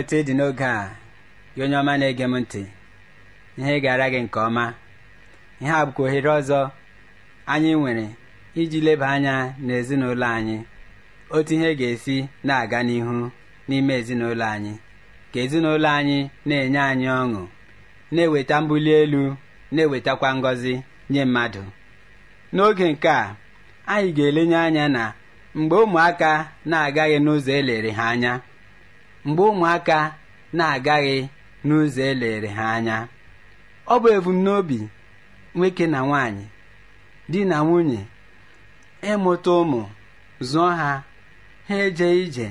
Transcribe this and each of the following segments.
otu ị dị n'oge a gị onye ọma na-ege m ntị ihe gara gị nke ọma ihe a bụkwa ohere ọzọ anyị nwere iji leba anya n'ezinụlọ anyị otu ihe ga-esi na-aga n'ihu n'ime ezinụlọ anyị ka ezinụlọ anyị na-enye anyị ọṅụ na-eweta mbuli elu na-ewetakwa ngọzi nye mmadụ n'oge nke a anyị ga-elenye anya na mgbe ụmụaka na-agaghị n'ụzọ elere ha anya mgbe ụmụaka na-agaghị n'ụzọ elere ha anya ọ bụ ebumnobi nwoke na nwanyị di na nwunye ịmụta ụmụ zụọ ha ha eje ije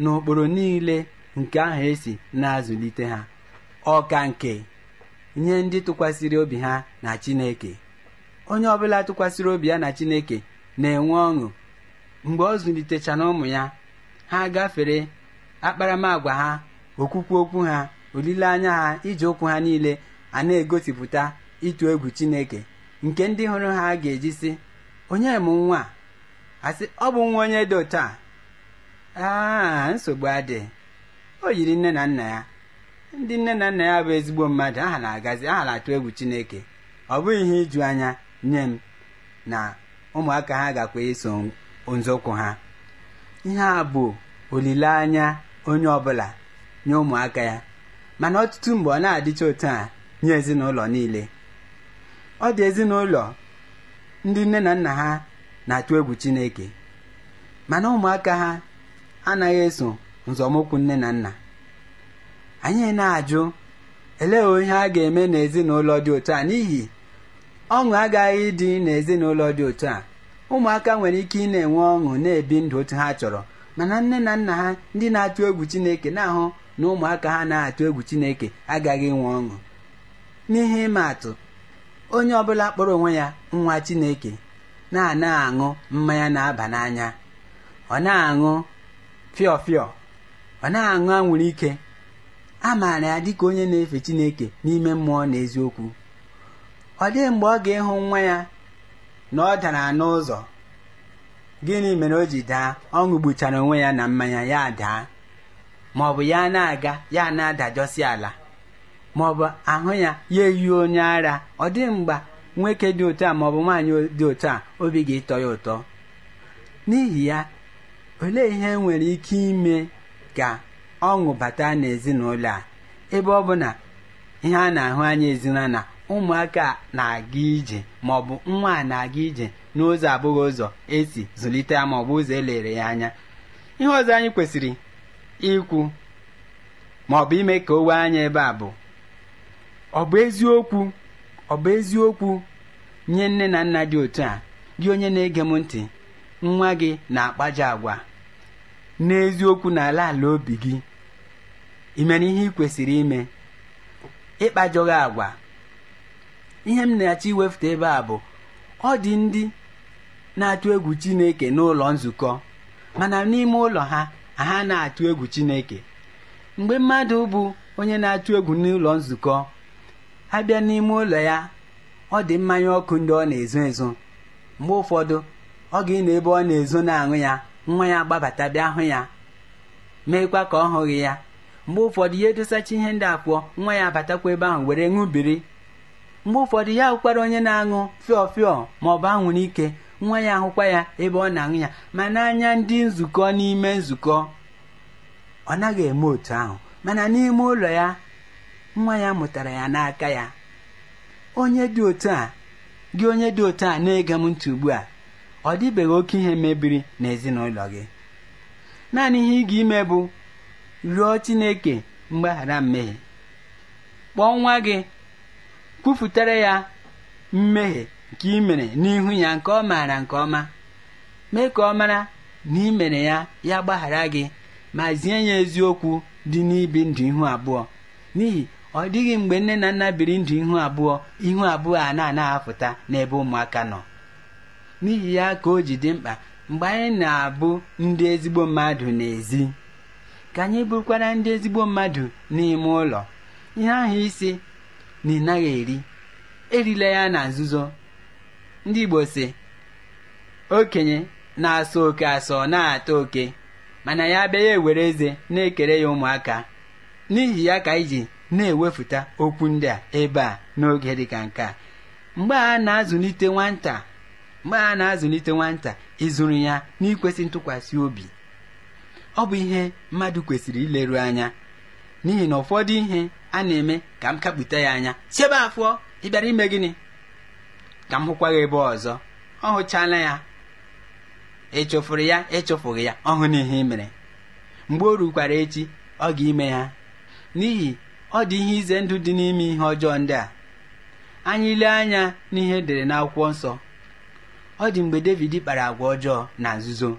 n'okporo niile nke ahụ esi na-azụlite ha ọka nke nye ndị tụkwasịrị obi ha na Chineke onye ọbụla tụkwasịrị obi ya na Chineke na-enwe ọṅụ mgbe ọ zụlitechana ụmụ ya ha gafere akparamagwa ha okwukwu okwu ha olileanya ha iji ụkwụ ha niile a na-egosipụta ịtụ egwu chineke nke ndị hụrụ ha ga-eji sị onye m nwa asị ọ bụ nwa onye dị otu nsogbu adị o yiri nne na nna ya ndị nne na nna ya bụ ezigbo mmadụ aha na-agazi aha na-atụ egwu chineke ọ bụghị ihe iju anya nye m na ụmụaka ha gakwa iso nzọụkwụ ha ihe a bụ olileanya onye ọbụla nye ụmụaka ya mana ọtụtụ mgbe ọ na-adịcha otu a nye ezinụlọ niile ọ dị ezinụlọ ndị nne na nna ha na-atụ egwu Chineke mana ụmụaka ha anaghị eso nzọmụkwụ nne na nna anyị na-ajụ elee ihe a ga-eme n'ezinụlọ dị otu a n'ihi ọṅụ agaghị ịdị n'ezinụlọ dị otu a ụmụaka nwere ike ị na-enwe ọṅụ na-ebi ndụ otu ha chọrọ mana nne na nna ha ndị na-atụ egwu chineke na-ahụ na ụmụaka ha na-atụ egwu chineke agaghị inwe ọṅụ n'ihe ịma atụ onye ọbụla kpọrọ onwe ya nwa chineke na-ana aṅụ mmanya na-aba n'anya ọ na-aṅụ fịọfịọ ọ na-aṅụ anwụrụ ike a maara ya dịka onye na-efe chineke n'ime mmụọ na eziokwu ọ dịghị mgbe ọ ga-ịhụ nwa ya na ọ dara n'ụzọ gịnị mere o ji daa ọ ṅụgbuchara onwe ya na mmanya ya daa ma ọ bụ ya na-aga ya na-adajọsi ala ma ọ bụ ahụ ya ya eyi onye ara ọ dị mgba nwoke dị otu a ma ọ bụ nwaanyị dị otu a obi ga-ịtọ ya ụtọ n'ihi ya olee ihe nwere ike ime ka ọṅụ bata n'ezinụlọ a ebe ọ bụ na ihe a na-ahụ anya ezinụlọ na ụmụaka na-aga ije ma ọ bụ nwa na-aga ije n'ụzọ abụghị ụzọ esi zụlite ya ma ọ bụ ụzọ elere ya anya ihe ọzọ anyị kwesịrị ikwu ma ọ bụ ime ka o wee anya ebe a bụ ọ bụ eziokwu ọ bụ eziokwu nye nne na nna dị otu a gị onye na-ege m ntị nwa gị na-akpaja agwa n'eziokwu n'ala ala obi gị imere ihe ị kwesịrị ime ịkpajọghị agwa ihe m na-achọ iwefụta ebe a bụ ọ dị ndị na-atụ egwu Chineke n'ụlọ nzukọ mana n'ime ụlọ ha ha na-atụ egwu Chineke mgbe mmadụ bụ onye na-atụ egwu n'ụlọ nzukọ bịa n'ime ụlọ ya ọ dị mmanya ọkụ ndị ọ na-ezo ezo mgbe ụfọdụ ọ ga ịnọ ebe ọ na-ezo na-aṅụ ya nwa ya gbabata bịa hụ ya meekwa ka ọ hụghị ya mgbe ụfọdụ ya edosacha ihe ndị apụọ nwa ya abatakwa ebe ahụ were ṅụbiri mgbe ụfọdụ ya hụkwara onye na-aṅụ fịọ fịọ ma ọ bụ anwụrụ ike nwa ya ahụkwa ya ebe ọ na-aṅụ ya ma n'anya ndị nzukọ n'ime nzukọ ọ naghị eme otu ahụ mana n'ime ụlọ ya nwa ya mụtara ya n'aka ya onye dị otu a gị onye dị otu a na-ege m ntị ugbu a ọ dịbeghị oke ihe mebiri n'ezinụlọ gị naanị ihe ị ga-ime bụ ruo Chineke mgbaghara mmehie kpọọ nwa gị kwupụtara ya mmehie ka ị mere n'ihu ya nke ọ maara nke ọma mee ka ọ mara na ị mere ya ya gbaghara gị ma zie ya eziokwu dị n'ibi ndụ ihu abụọ n'ihi ọ dịghị mgbe nne na nna biri ndụ ihu abụọ ihu abụọ a na-anaghị apụta n'ebe ụmụaka nọ n'ihi ya ka o ji dị mkpa mgbe anyị na-abụ ndị ezigbo mmadụ n'ezi ka anyị bụrụkwara ndị ezigbo mmadụ n'ime ụlọ ihe ahụ isi na ị naghị eri erila ya na nzuzo ndị Igbo si okenye na-asọ oke asọ na-ata oke mana ya bịa ya ewere eze na-ekere ya ụmụaka n'ihi ya ka iji ji na ewefụta okwu ndị a ebe a n'oge dịka nke a mgbe a na-azụlite nwata mgbe a na-azụlite nwata ịzụrụ ya n'ikwesị ntụkwasị obi ọ bụ ihe mmadụ kwesịrị ileru anya n'ihi na ụfọdụ ihe a na-eme ka m kapụta ya anya chebe afọ ịbịara ime gịnị ka m hụkwa gị ebe ọzọ ọ hụchala ya ịchụfụrụ e ya ịchụfụghị e ya ọ hụ n'ihe i mere mgbe o rukwara echi ọ ga-ime ya n'ihi ọ dị ihe ize ndụ dị n'ime ihe ọjọọ ndị a anyị lee anya n'ihe e dere n'akwụkwọ nsọ ọ dị mgbe David kpara agwa ọjọọ na nzuzo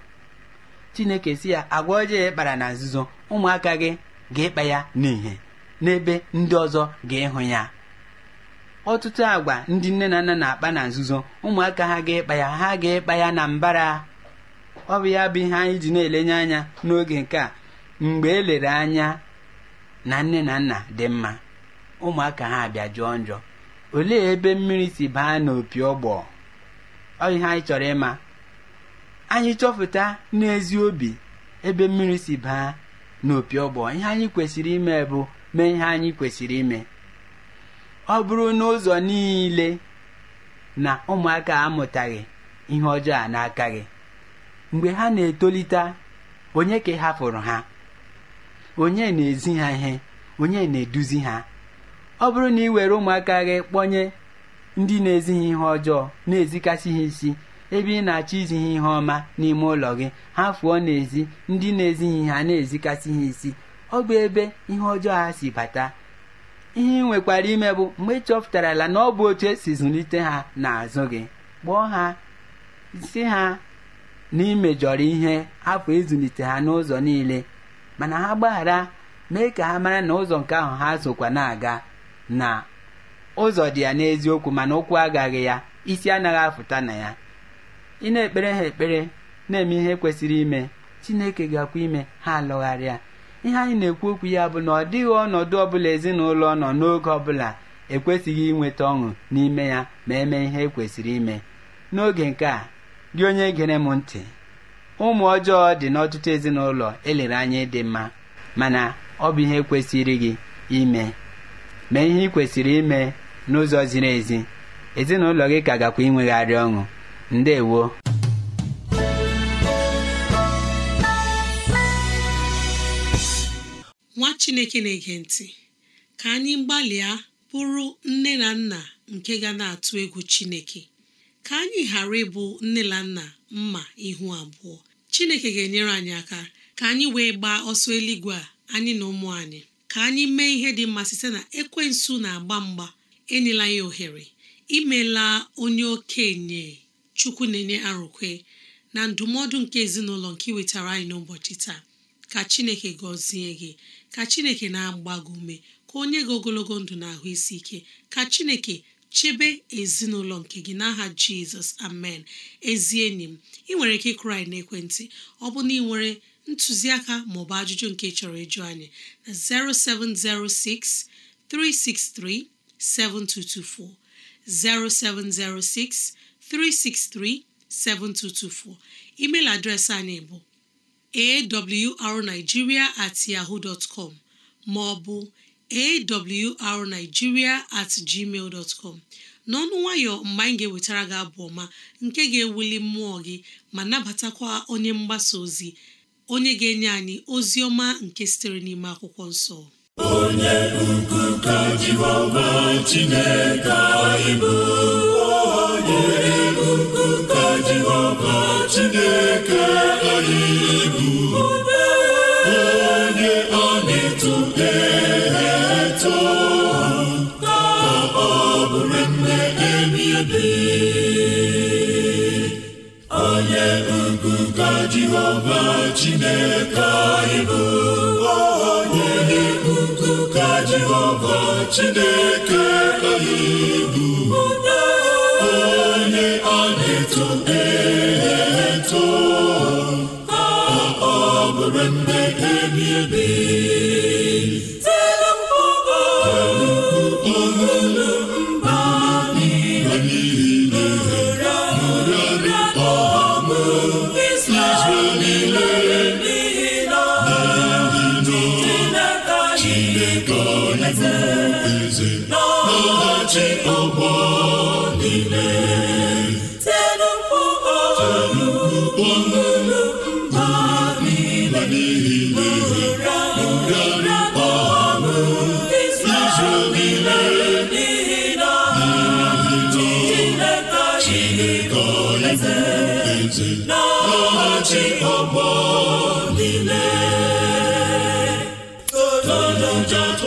Chineke si ya agwa ọjọọ ịkpara na nzuzo ụmụaka gị ga-ịkpa ya n'ihe n'ebe ndị ọzọ ga-ịhụ ya ọtụtụ agwa ndị nne na nna na-akpa na nzuzo ụmụaka ha ga ịkpa ya ha ga ịkpa ya na mbara ọ bụ ya bụ ihe anyị ji na-elenye anya n'oge nke a mgbe elere anya na nne na nna dị mma ụmụaka ha bịa jụọ njọ olee ebe mmiri si baa n'opi ọgbọ ọ ihe anyị chọrọ ịma anyị chọpụta n'ezi obi ebe mmiri si baa n'opi ọgbọ ihe anyị kwesịrị ime bụ mee ihe anyị kwesịrị ime ọ bụrụ n'ụzọ niile na ụmụaka amụtaghị ihe ọjọọ a n'aka gị mgbe ha na-etolite onye ka hapụrụ ha onye na-ezi ha ihe onye na-eduzi ha ọ bụrụ na ị were ụmụaka gị kpọnye ndị na ezighị ihe ọjọọ na-ezikasị ha isi ebe ị na-achọ izi ihe ọma n'ime ụlọ gị ha fụọ n'ezi ndị na-ezighị ha na-ezikasị ha isi ọ bụ ebe ihe ọjọọ ha si bata ihe ị nwekwara ime bụ mgbe ị chọpụtara ala na ọ bụ otu esi zụlite ha n'azụ gị kpọọ ha si ha na imejọrọ ihe hapụ ịzụlite e ha n'ụzọ niile mana ha gbaghara mee ka ha mara na ụzọ nke ahụ ha zụkwa na-aga na ụzọ dị ya n'eziokwu mana ụkwụ agaghị ya isi anaghị afụta na ya ị na-ekpere ha ekpere na-eme ihe kwesịrị ime Chineke gakwa ime ha alọgharịa ihe anyị na-ekwu okwu ya bụ na ọ dịghị ọnọdụ ọbụla ezinụlọ nọ n'oge ọbụla ekwesịghị inweta ọṅụ n'ime ya ma eme ihe ekwesịrị ime n'oge nke a gị onye gere m ntị ụmụ ọjọọ dị n'ọtụtụ ezinụlọ elere anya ịdị mma mana ọ bụ ihe kwesịrị gị ime mee ihe ị kwesịrị ime n'ụzọ ziri ezi ezinụlọ gị ka gakwa inwegharị ọṅụ ndewo nwa chineke na-ege ntị ka anyị gbalịa bụrụ nne na nna nke ga na-atụ egwu chineke ka anyị ghara ịbụ nne na nna mma ihu abụọ chineke ga-enyere anyị aka ka anyị wee gbaa ọsọ eluigwe a anyị na ụmụ anyị ka anyị mee ihe dị mma site na ekwensu na-agba mgba enyela ya ohere imela onye okenye chukwu na-enye arụkwe na ndụmọdụ nke ezinụlọ nke wetara anyị n'ụbọchị taa ka chineke gọzie gị ka chineke na agbago ume ka onye ga gị ogologo ndụ na ahụ isi ike ka chineke chebe ezinụlọ nke gị n'aha jizọs amen ezi enyi m ị nwere ike ịkụrụ na n'ekwentị ọ bụ na ị nwere ntụziaka maọbụ ajụjụ nke chọrọ ịjụ anyị na 0706 363 7224 0706 363 7224 email adreesị anyị bụ awrnigeria at yaho dtcom maọbụ ma ọ bụ at gmail dot n'ọnụ nwayọ mgbe anyị ga-ewetara gị abụ ọma nke ga-ewuli mmụọ gị ma nabatakwa onye mgbasa ozi onye ga-enye anyị ozi ọma nke sitere n'ime akwụkwọ nsọ onye ukwu ka Chineke anyị ibi onye ukwu ka Jehova Chineke anyị bụ onye ukwu ka Jehova Chineke anyị bụ onye a na-eto e Shout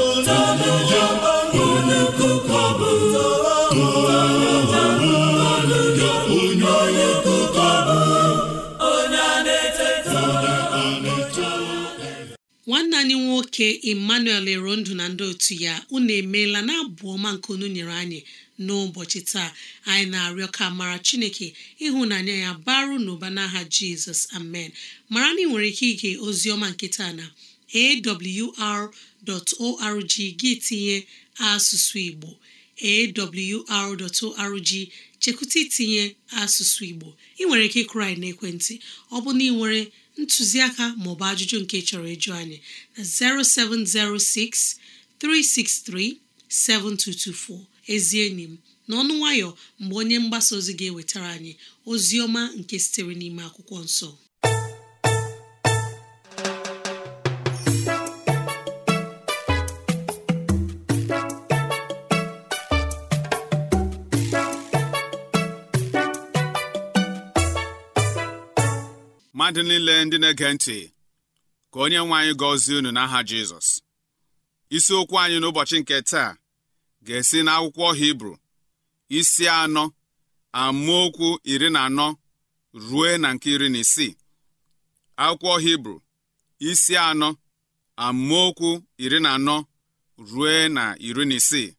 anyị nwoke emmanuel ero ndụ na ndị otu ya unu emeela na abụ ọma nke unu nyere anyị n'ụbọchị taa anyị na-arịọ ka mara chineke ịhụnanya ya baru n'ụba n'aha jizọs amen mara na ị nwere ike ige ozi ọma na awr.org gị tinye asụsụ igbo awr.org chekwụta itinye asụsụ igbo ị nwere ike ịkụrụ n'ekwentị ọ bụ na ị nwere ntụziaka bụ ajụjụ nke chọrọ ịjụ anyị na 0706 363 7224 ezi enyi m n'ọnụ nwayọ mgbe onye mgbasa ozi ga-ewetara anyị ozi ọma nke sitere n'ime akwụkwọ nsọ mmadụ niile ndị na-ege ntị ka onye nwe anyị gọzie unu n'aha Jizọs isiokwu anyị n'ụbọchị nke taa ga-esi n'akwụkwọ Hibru isi anọ amaokwu iri na anọ rue na nke iri na isii akwụkwọ Hibru isi anọ amaokwu iri na anọ rue na iri na isii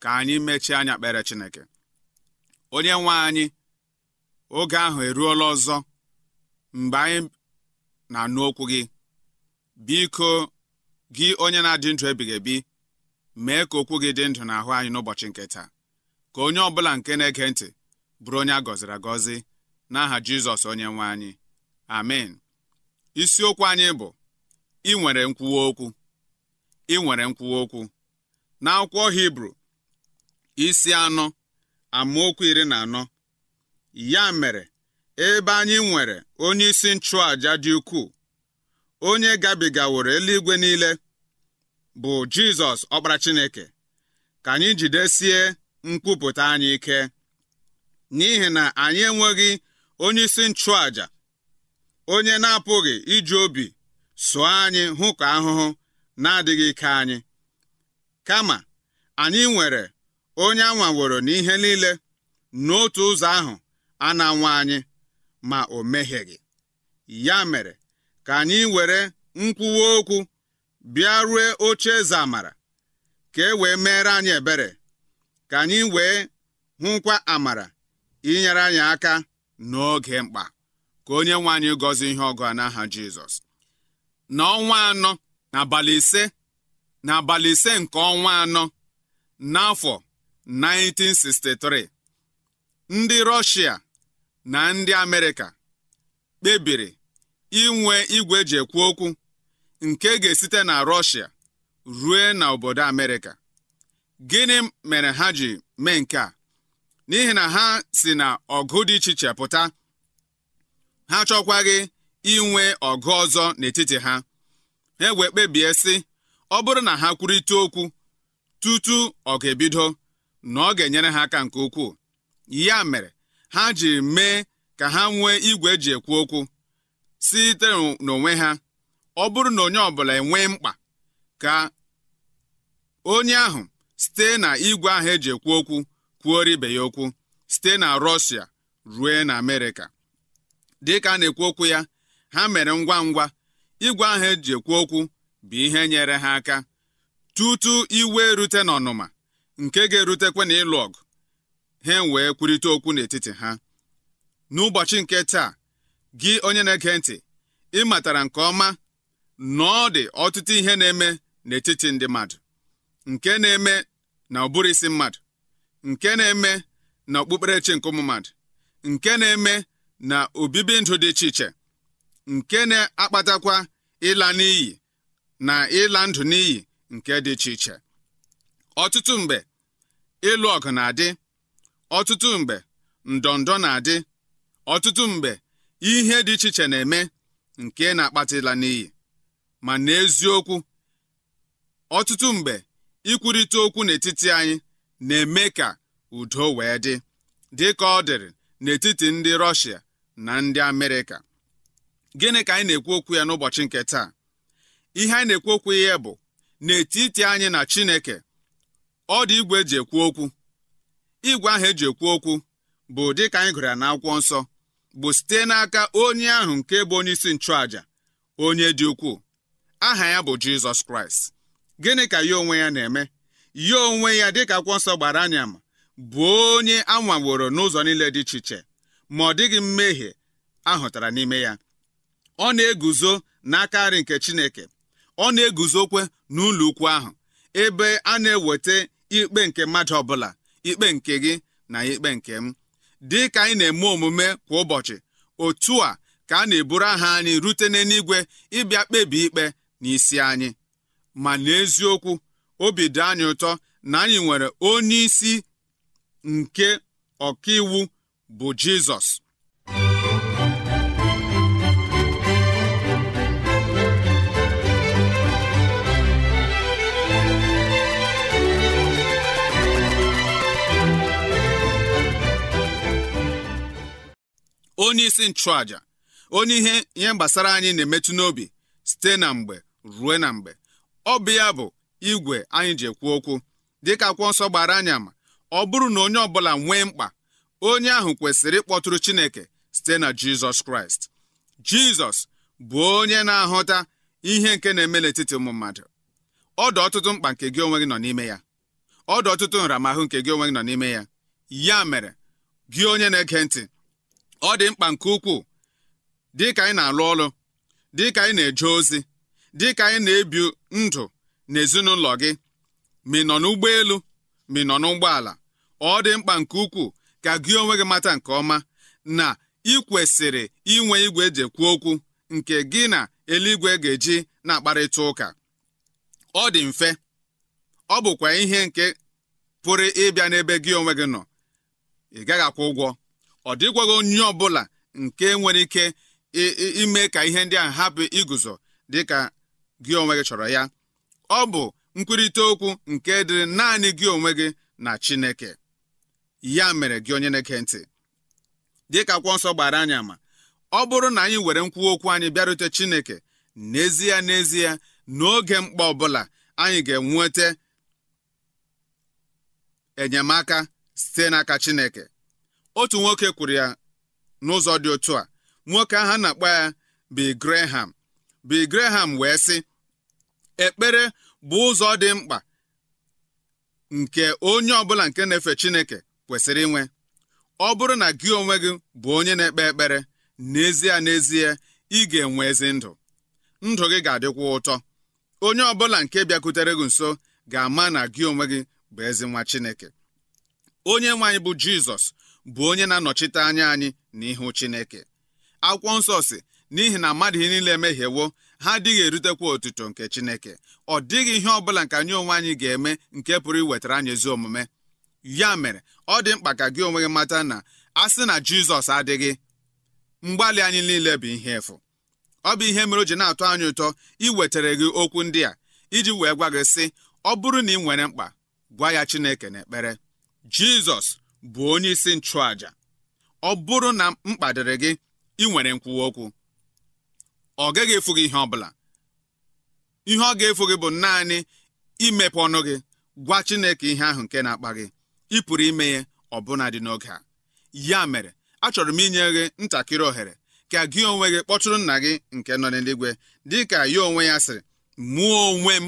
ka anyị mechie anya kpere Chineke onye nwe anyị oge ahụ eruola ọzọ mgbe anyị na-anụ okwu gị biko gị onye na-adị ndụ ebighị ebi mee ka okwu gị dị ndụ n'ahụ anyị n'ụbọchị nke taa ka onye ọbụla nke na-ege ntị bụrụ onye a gọziri agọzi n'aha Jizọs onye nwe anyị amen isiokwu anyị bụ ị nwere nkwuwa okwu ị nwere nkwuwa okwu n'akwụkwọ Hibru isi anọ amaokwu iri na anọ ya mere ebe anyị nwere onyeisi nchụàja dị ukwuu onye gabigaworo eluigwe niile bụ Jizọs ọkpara Chineke ka anyị jidesie nkwupụta anyị ike n'ihi na anyị enweghị onyeisi nchụàja onye na-apụghị iji obi sụọ anyị hụ ka ahụhụ na-adịghị ike anyị kama anyị nwere onye anwaworo n'ihe niile n'otu ụzọ ahụ a na-anwa anyị ma o mehieghị ya mere ka anyị were nkwuwa okwu bịa rue oche eze amara ka e wee meere anyị ebere ka anyị wee hụkwa amara inyere anyị aka n'oge mkpa ka onye nwe anyị gọzie ihe ọgụ a n'aha Jizọs n'ọnwa anọ n'abalị ise n'abalị ise nke ọnwa anọ n'afọ 1963 ndị Rọshia na ndị Amerịka kpebiri inwe igwe eji ekwu okwu nke ga-esite na Rọshia rue na obodo Amerịka gịnị mere ha ji mee nke a n'ihi na ha si na ọgụ dị iche iche pụta ha chọkwaghị inwe ọgụ ọzọ n'etiti ha ha wee kpebie sị ọ bụrụ na ha kwurịta okwu tutu ọ ga-ebido na ọ ga-enyere ha aka nke ukwuu ya mere ha ji mee ka ha nwee igwe eji ekwu okwu site n'onwe ha ọ bụrụ na onye ọbụla enwee mkpa ka onye ahụ site na igwe ahụ eji ekwu okwu kwuori ibe ya okwu site na Rọshia rue na Amerịka dịka a na-ekwu okwu ya ha mere ngwa ngwa igwe ahụ eji ekwu okwu bụ ihe nyere ha aka tutu iwe erute n'ọnụma nke ga erutekwa na ịlụ ọgụ ha wee kwurịta okwu n'etiti ha n'ụbọchị nke taa gị onye na-ege ntị ị matara nke ọma na ọ dị ọtụtụ ihe na-eme n'etiti ndị mmadụ nke na-eme na ụbụrụ isi mmadụ nke na-eme na okpukperechi nke ụmụ mmadụ nke na-eme na obibi ndụ dị iche iche nke na-akpatakwa ịla n'iyi na ịla ndụ n'iyi nke dị iche iche ọtụtụ mgbe ịlụ ọgụ na-adị ọtụtụ mgbe ndọndọ na-adị ọtụtụ mgbe ihe dị iche iche na-eme nke na-akpatịla n'iyi ma n'eziokwu ọtụtụ mgbe ikwurịta okwu n'etiti anyị na-eme ka udo wee dị dị ka ọ dịrị n'etiti ndị rọshia na ndị Amerịka gịnị ka anyị na-ekwu okwu ya n'ụbọchị nke taa ihe anyị na-ekwu okwu ya bụ n'etiti anyị na Chineke ọ dị igwe eji ekwu okwu igwe ahụ eji ekwu okwu bụ dịka anyị gụrụ ya n'akwụkwọ nsọ bụ site n'aka onye ahụ nke bụ onye isi nchụàja onye dị ukwuu aha ya bụ Jizọs Kraịst gịnị ka ya onwe ya na-eme ya onwe ya dịka akwụkwọ nsọ gbara anya ma bụ onye anwaworo n'ụzọ niile dị iche iche ma ọ dịghị mmehie ahụtara n'ime ya ọ na-eguzo n'aka nri nke Chineke ọ na-eguzokwe n'ụlọ ukwu ahụ ebe a na-eweta ikpe nke mmadụ ọbụla ikpe nke gị na ikpe nke m dị ka anyị na-eme omume kwa ụbọchị otu a ka a na-eburu aha anyị rute n'eluigwe ịbịa kpebi ikpe na isi anyị ma n'eziokwu obi dị anyị ụtọ na anyị nwere onye isi nke ọkaiwu bụ Jizọs onye isi nchụàja onye ihe ihe gbasara anyị na-emetụ n'obi site na mgbe ruo na mgbe ọ bụ ya bụ igwe anyị ji ekwu okwu dịka akwụkwọ nsọ gbara anyị ama ọ bụrụ na onye ọbụla nwee mkpa onye ahụ kwesịrị ịkpọtụrụ Chineke site na Jizọs Kraịst Jizọs bụ onye na-ahụta ihe nke na-eme n'etiti ụmụ mmadụ ọ dị ọtụtụ mkpa nke gị onwe gị nọ n'ime ya ọ dị ọtụtụ nramahụ nke gị onwe gị nọ n'ime ya ya mere gị onye na-ege ntị ọ dị mkpa nke ukwuu dịka anyị na-alụ ọrụ dịka anyị na-eje ozi dịka anyị na-ebi ndụ n'ezinụlọ gị ma ị nọ n'ụgbọelu ma ị nọ n'ụgbọala ọ dị mkpa nke ukwuu ka gị onwe gị mata nke ọma na ị kwesịrị inwe igwe eji ekwu okwu nke gị na eluigwe ga-eji na-akparịta ụka ọ dị mfe ọ bụkwa ihe nke pụrụ ịbịa n'ebe gị onwe gị nọ ị gaghị akwụ ụgwọ ọ dịgwaghị onye ọbụla nke nwere ike ime ka ihe ndị a hapụ iguzo dịka gị onwe gị chọrọ ya ọ bụ nkwurịta okwu nke dịrị naanị gị onwe gị na Chineke ya mere gị onye na-eke ntị dịka akwụkwọ nsọ gbara anyị ama ọ bụrụ na anyị were nkwu okwu anyị bịarute Chineke n'ezie n'ezie n'oge mkpa ọbụla anyị ga-enweta enyemaka site n'aka Chineke otu nwoke kwuru ya n'ụzọ dị otu a nwoke ahụ na-akpọ ya Bill Graham Bill Graham wee sị ekpere bụ ụzọ dị mkpa nke onye ọbụla nke na-efe Chineke kwesịrị inwe ọ bụrụ na gị onwe gị bụ onye na-ekpe ekpere n'ezie n'ezie ị ga-enwe ezi ndụ ndụ gị ga-adịkwa ụtọ onye ọbụla nke bịakwutere gị nso ga-ama na gị onwe gị bụ ezi nwa Chineke onye nwaanyị bụ Jizọs bụ onye na-anọchite anya anyị n'ihu Chineke akwụkwọ nsọ si n'ihi na mmadụ ihe niile emehiewo ha adịghị erutekwa otuto nke Chineke ọ dịghị ihe ọbụla nke anyị onwe anyị ga-eme nke pụrụ iwetara anyị ezi omume ya mere ọ dị mkpa ka gị onwe gị mata na a sị na Jizọs adịghị mgbalị anyị niile bụ ihe efu ọ bụ ihe mere o ji na-atọ anyị ụtọ iwetara gị okwu ndị a iji wee gwa gị sị ọ bụrụ na ị nwere mkpa gwa ya Chineke ekpere Jizọs bụ onye isi nchụàjà ọ bụrụ na mkpa dịrị gị ị nwere nkwuwa okwu ọ gaghị efu gị ihe ọ bụla ihe ọ ga-efu gị bụ naanị imepe ọnụ gị gwa Chineke ihe ahụ nke na-akpa gị ị pụrụ ime ya ọbụna dị n'oge a ya mere achọrọ m inye gị ntakịrị ohere ka gị onwe gị kpọtụrụ nna gị nke nọ n'eluigwe dị ka ya onwe ya sịrị mụọ onwe m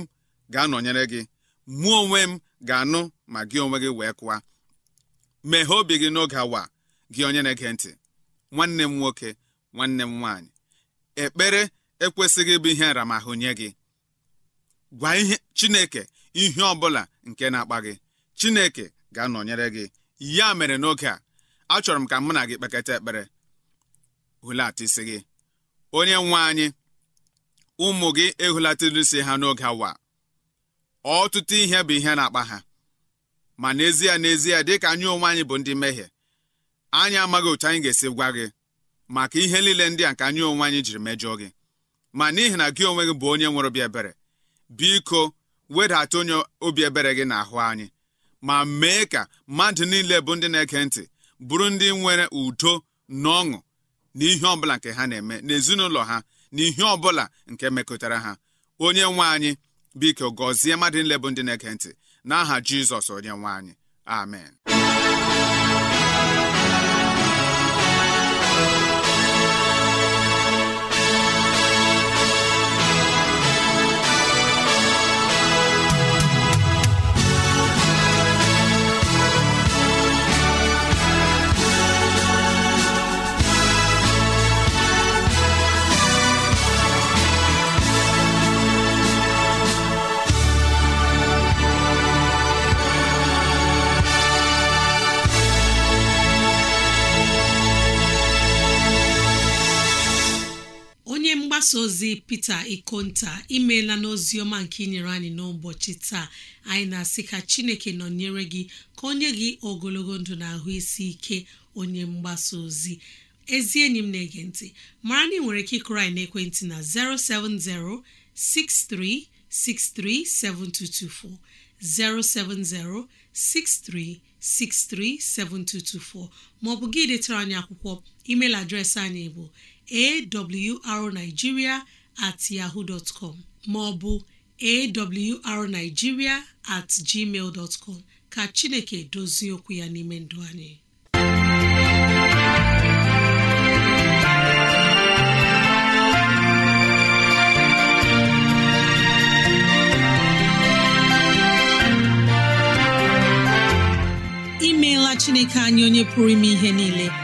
ga-anọnyere gị mụọ onwe m ga-anụ ma gị onwe gị wee kụwa meghee obi gị n'oge awa gị onye na-ege ntị nwanne m nwoke nwanne m nwaanyị ekpere ekwesịghị ịbụ ihe nramahụ nye gị gwa ihe chineke ihe ọbụla nke na-akpa gị chineke ga-anọnyere gị ya mere n'oge a achọrọ m ka mụ na gị kpekata ekpere hulata isi gị onye nwe anyị ụmụ gị ehulatara isi ha n'oge awa ọtụtụ ihe bụ ihe na-akpa ha ma n'ezie n'ezie dịka anyị onwe anyị bụ ndị mmehie anyị amaghị otu anyị ga-esi gwa gị maka ihe niile ndị a nke anyị onwe anyị jiri mejọọ gị ma n'ihi na gị onwe gị bụ onye nwere obi ebere biko wedata onye obi ebere gị n'ahụ anyị ma mee ka mmadụ niile bụ ndị na-ege ntị bụrụ ndị nwere udo na ọṅụ na ihe ọbụla nke ha na-eme n'ezinụlọ ha na ihe ọbụla nke mekọtara ha onye nwe anyị biko gọzie mmadụ niile bụ ndị na-ege ntị n'aha Jizọs onye nwe anyị amen mgbasa ozi Peter Ikonta imeela n'oziọma nke inyere anyị n'ụbọchị taa anyị na-asị ka Chineke nọnyere gị ka onye gị ogologo ndụ na ahụ isi ike onye mgbasa ozi ezi enyi m na-ege ntị mara na ị nwere ike ịkụrụ anyị ekwentị na 070 0706363724 maọbụ gị detara anyị akwụkwọ email adreesị anyị bụ awrnigeria at yahoo dot com maọbụ awrnigeria at gmail dot com ka chineke dozie okwu ya n'ime ndụ anyị imeela chineke anyị onye pụrụ ime ihe niile